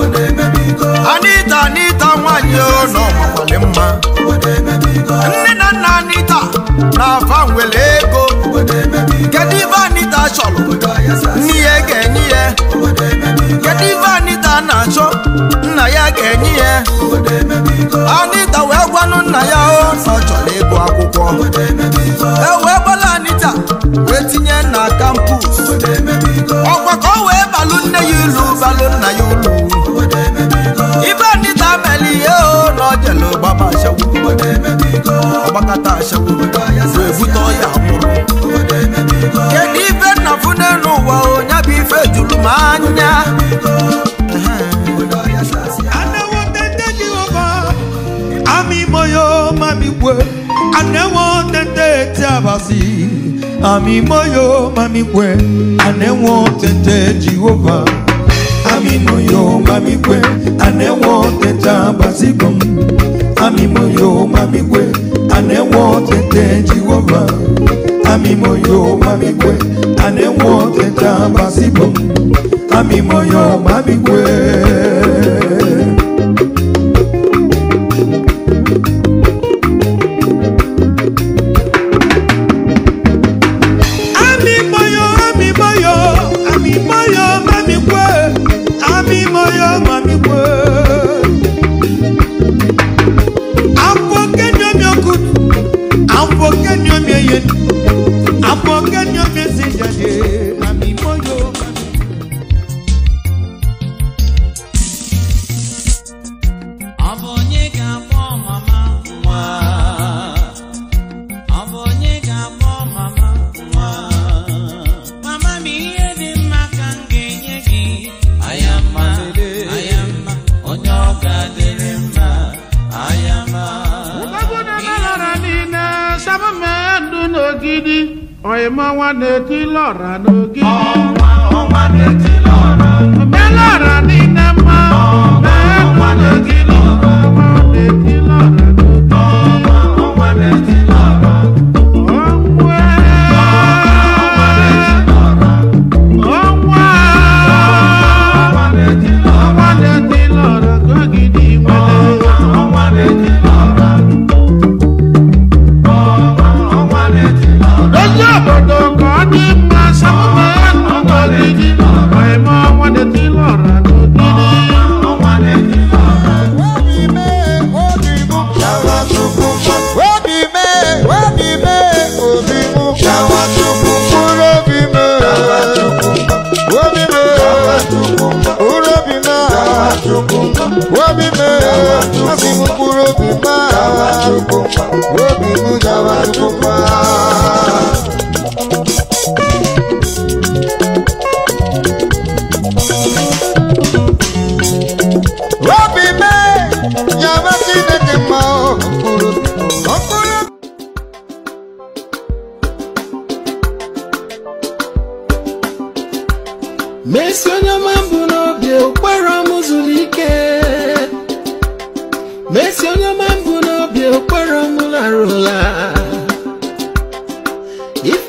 Anita Anita nwanyị ọnọ makwali mma nne na nna Anita na-afa nwere ego kedu ibe Anita chọrọ nne ya ga-enye ya kedu ibe Anita na-achọ nna ya ga-enye ya Anita wee gwanụ nna ya ọ chọrọ ịgụ akwụkwọ e Ami moyo mami kwe anewo tete Jehova Ami moyo mami kwe anewo teta basigom Ami moyo mami kwe anewo tete Jehova Ami moyo mami kwe anewo teta basigom Ami moyo mami kwe I'm your message, yeah. ọ̀ìmọ̀ wọn n'eti lọ́ra n'ogi. ọ̀ma ọ̀ma n'eti lọ́ra. mẹ́lọ́ra ní nẹ́ẹ̀ma. ọ̀ma ọ̀ma n'eti lọ́ra. ọ̀ma n'eti lọ́ra.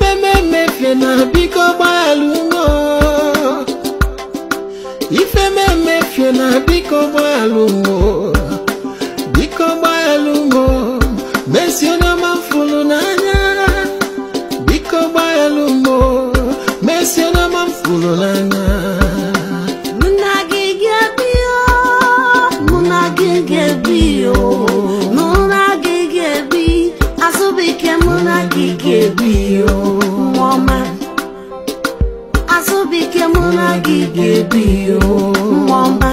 ife m emefie na biko gbalụgo ife m emefie na biko gbalụgo di oh. o. Mọ́má.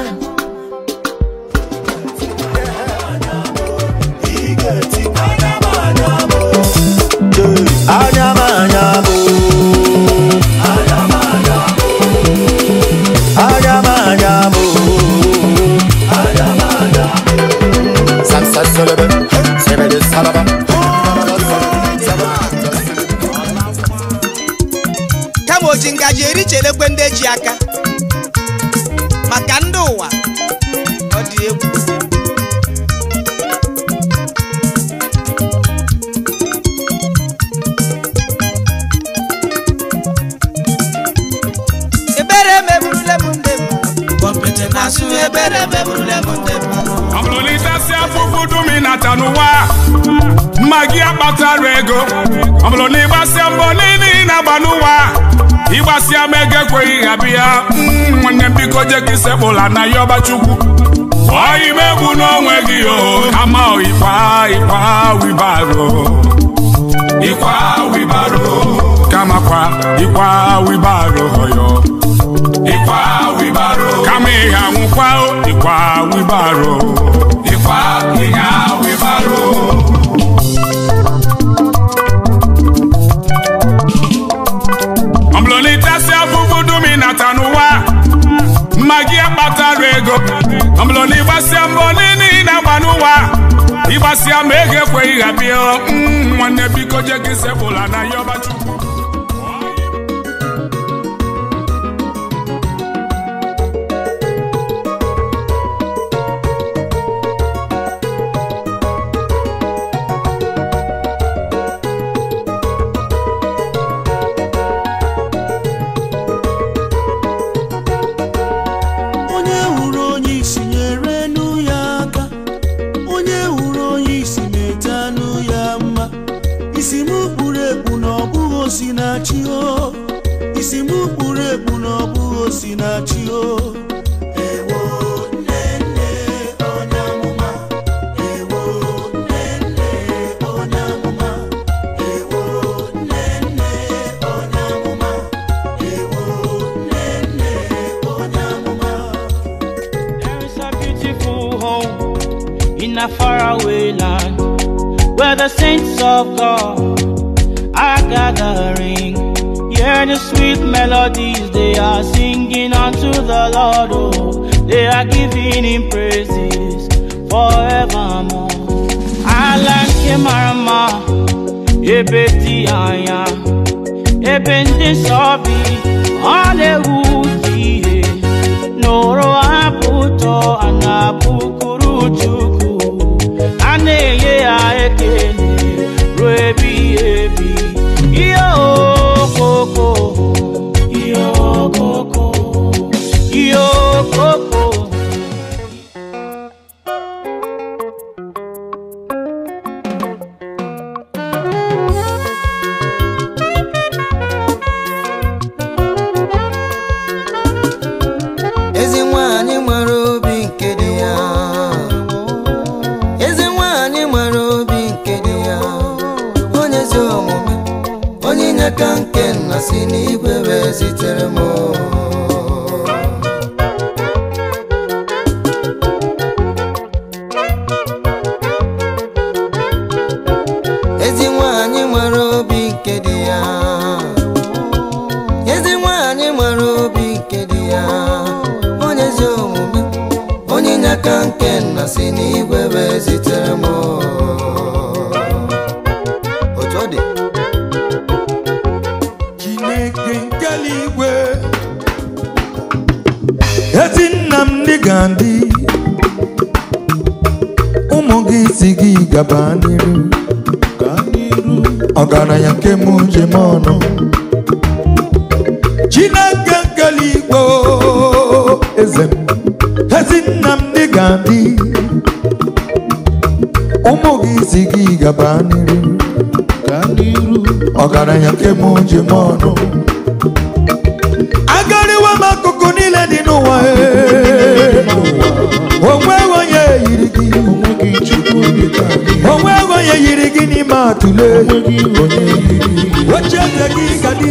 Adama kama oji ngaji erichele ndị eji aka maka ndị ụwa ọ dị egwu ebere meburule m ndị m kpọpete na-asụ ebere meburule m ndị m ọ bụrụ na ịtasị afụfụ dum ị nata n'ụwa mma gị akpatara ego ọ bụrụ na ịgbasịa mbọ niile ị na-agba ịgbasịa m ego ekweghị ha bịa mm, nwanne biko je ka na ya Chukwu. ọyị ime egbu n'onwe gị o ama ịkwa ịkwa wibaro ịkwa wibaro kamakwa ịkwa wibaro hoyo ikwa wibaro kama ịha nwụkwa ịkwa wibaro ịkwa ịha ịgbasịa mbọ niile ị na-agba n'ụwa ịgbasịa ma ego ekweghị ha mm, nwanne biko je gị sepụla na yọba chukwu osinachi o isi m kpuru ekpu na ọ bụghị osinachi o faraway land where the saints of God are gathering. Hear the sweet melodies they are singing unto the Lord. Oh, they are giving him praises forevermore. Alanke marama, ebeti aya, ebende sobi, ole noro abuto anabuku. n'igwe wee zitere m otu ọ dị Chineke nke eluigwe ezi nna m ga ndị ụmụ gị si gị gaba n'iru ọgaranya nke m njem ọnụ Chineke nke eluigwe eze m ezi nna m ga ndị N'ezi gị gaba n'iru ọgaranya nke m ji m ọnụ agariwa m akụkụ niile dị n'ụwa onwe onye yiri gị onwe onye yiri gị n'ime atụle oche eze gị ga dị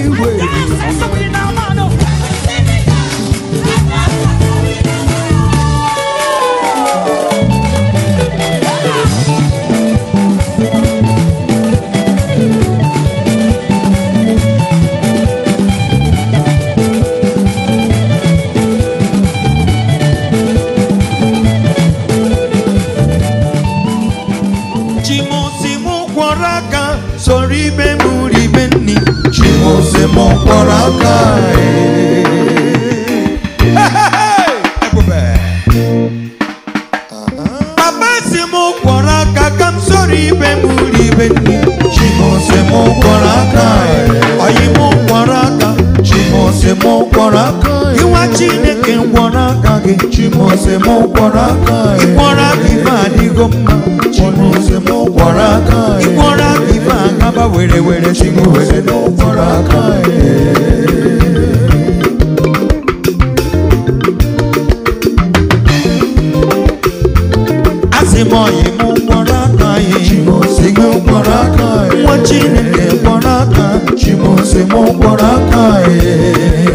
sori be muri be ni chimose mo poraka e Papa si mo poraka kam sori be muri be ni chimose mo poraka e ayi mo poraka chimose mo poraka iwa chineke mo aka gị chimose m gwọrọ aka ịgwọrọ aka ife adịgo mma chimose m gwọrọ aka ịgwọrọ aba werewere cinguwere nokoraka azimoyi mukoraka cimosigi ukoraka mwacinene koraka cimosi mukoraka e